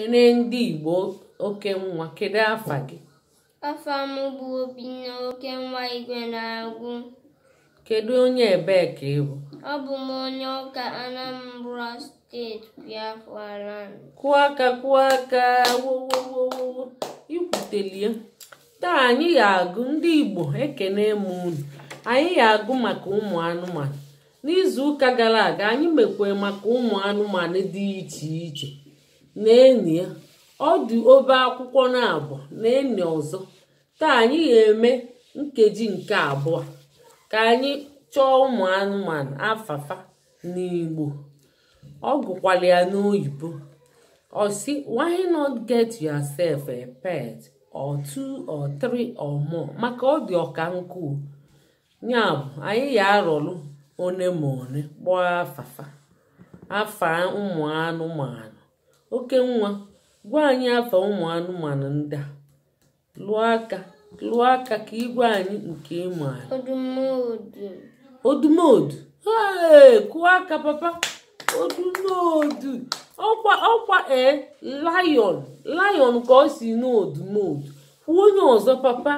Ekele ndị Igbo oke nwa kedu afa gị? Afa m bụ obi na oke nwa igwe na agwụ Kedu onye ebee ka ị bụ? Ọ bụ m onye ụka Anambra steeti Biafra land. Kụọ aka kụọ aka wowowowo ikwutelie taa anyị ga-agụ ndị Igbo ekene m unu anyị ga-agụ maka ụmụ anụmanụ n'izu ụka gara aga anyị mekwere maka ụmụ anụmanụ dị iche iche na-eni ya ọ dị obe akwụkwọ na abụọ na-eni ọzọ taa anyị ga-eme nkeji nke abụọ ka anyị chọọ ụmụ anụmanụ afafa n'igbo ọ gụkwala ya n'oyibo ọ si why not get yourself a pet or two or three or more maka ọ dị ọka nkụ ya bụ anyị ga arụrụ one ma one kpọọ afafa afa ụmụ anụmanụ oke nwa gwa anyị afọ ụmụ anụmanụ ndị a lụọ aka lụọ aka ka ịgwa anyị nke ịmụ anyị odumodu ee kụọ aka papa odumodu ọkwa ọkwa ee layon layon ka ọ si n'odumodu onye ọzọ papa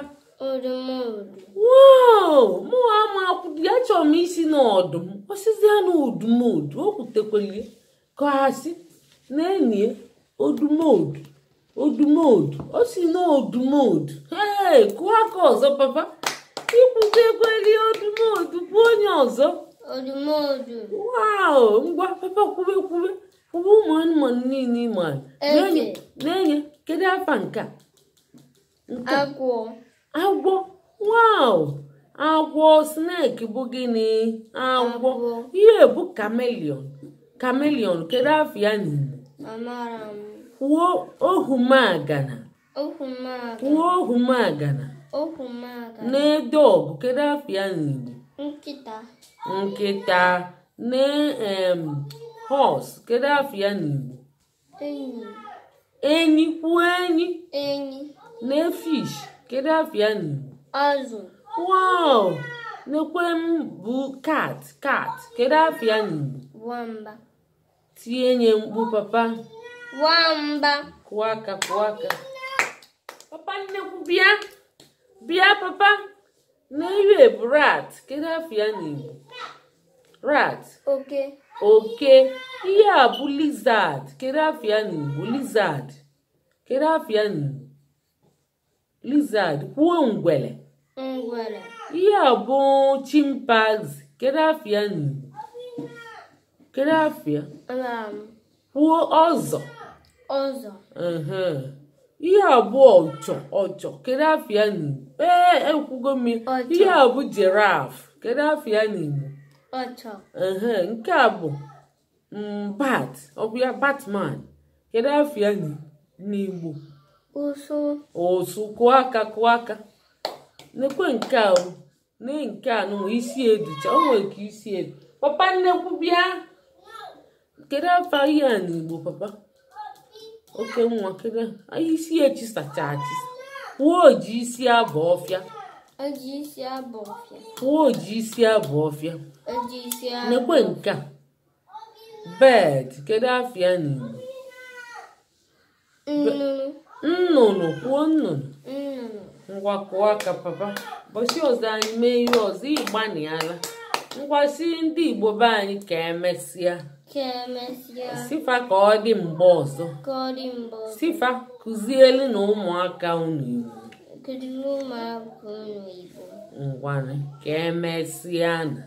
wow mụ ama ya chọrọ m isi n'ọdụm ya n'odumodu o kwutekwere ka ha si na-enye odumod odumod o si na odumod ee kụọ aka ọzọ papa ikwukwa ego elie odumod bụ onye ọzọ wow ngwa papa kwube kwube kwube ụmụ anụmanụ niile ịma na-enye kedu afa nke agwọ agwọ agwọ snake bụ gịnị agwọ ihe bụ kamelion kamelion kedu afọ ya n'Igbo kwuo ohumagana kwuo ohumagana na-edogụ kedu afọ ya n'Igbo nkịta na em hos kedu afọ ya n'Igbo enyi kwuo enyi na fish kedu afọ ya n'Igbo wow nekwe m bụ kat kat kedu afọ ya n'Igbo nye mkpu papa. Nwamba. Kụọ aka kụọ aka. Papa nnekwu bịa. Bịa papa. N'iwe bụ rat. Kedu afọ ya n'Igbo? Rat. Oke. Oke. Ihe a bụ lizard. Kedu afọ ya n'Igbo? Lizard. Kedu afọ ya n'Igbo? Lizard. Kwuo ngwere Ngwele. Ihe a bụ chimpanzee. Kedu afọ ya n'Igbo? Kedu afịa? Kwuo ọzọ. Ọzọ. Ihe abụọ ọchọ ọchọ kedu afia n'Igbo? Ee, ekwugo m ihe abụ jiraf kedu afia n'Igbo? Ọchọ. Nke a bụ mm, bat ọ bụ batman kedu afia n'Igbo? Ụsụ. Ụsụ kụọ aka kụọ aka. Nekwe nke a nke a nụ isi edicha o nwere ka isi edu. Papa nnekwu bịa. kedu afọ ihe a n'Igbo papa oke nwa kedu isi echi sacha achị wuo oji isi abụ ọfịa oji isi abụ ọfịa wuo oji isi abụ ọfịa oji isi abụ nekwe nke a bed kedụ afịa ya n'Igbo nnụnụ kwuo nnụnụ ngwa kụọ aka papa ụbọchị ọzọ anyị mee ihe ọzọ ịgbanịala ngwasi ndị igbo be anyị ka emesịa sifa ka ọ dị mgbe ọzọ sifa kụzielu na ụmụaka unu igbo ngwanụ ka emesịa na